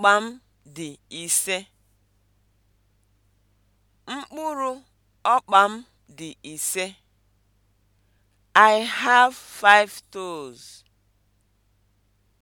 Akpa m dị ise. Mkpụrụ ọkpa m dị ise. I have five toes.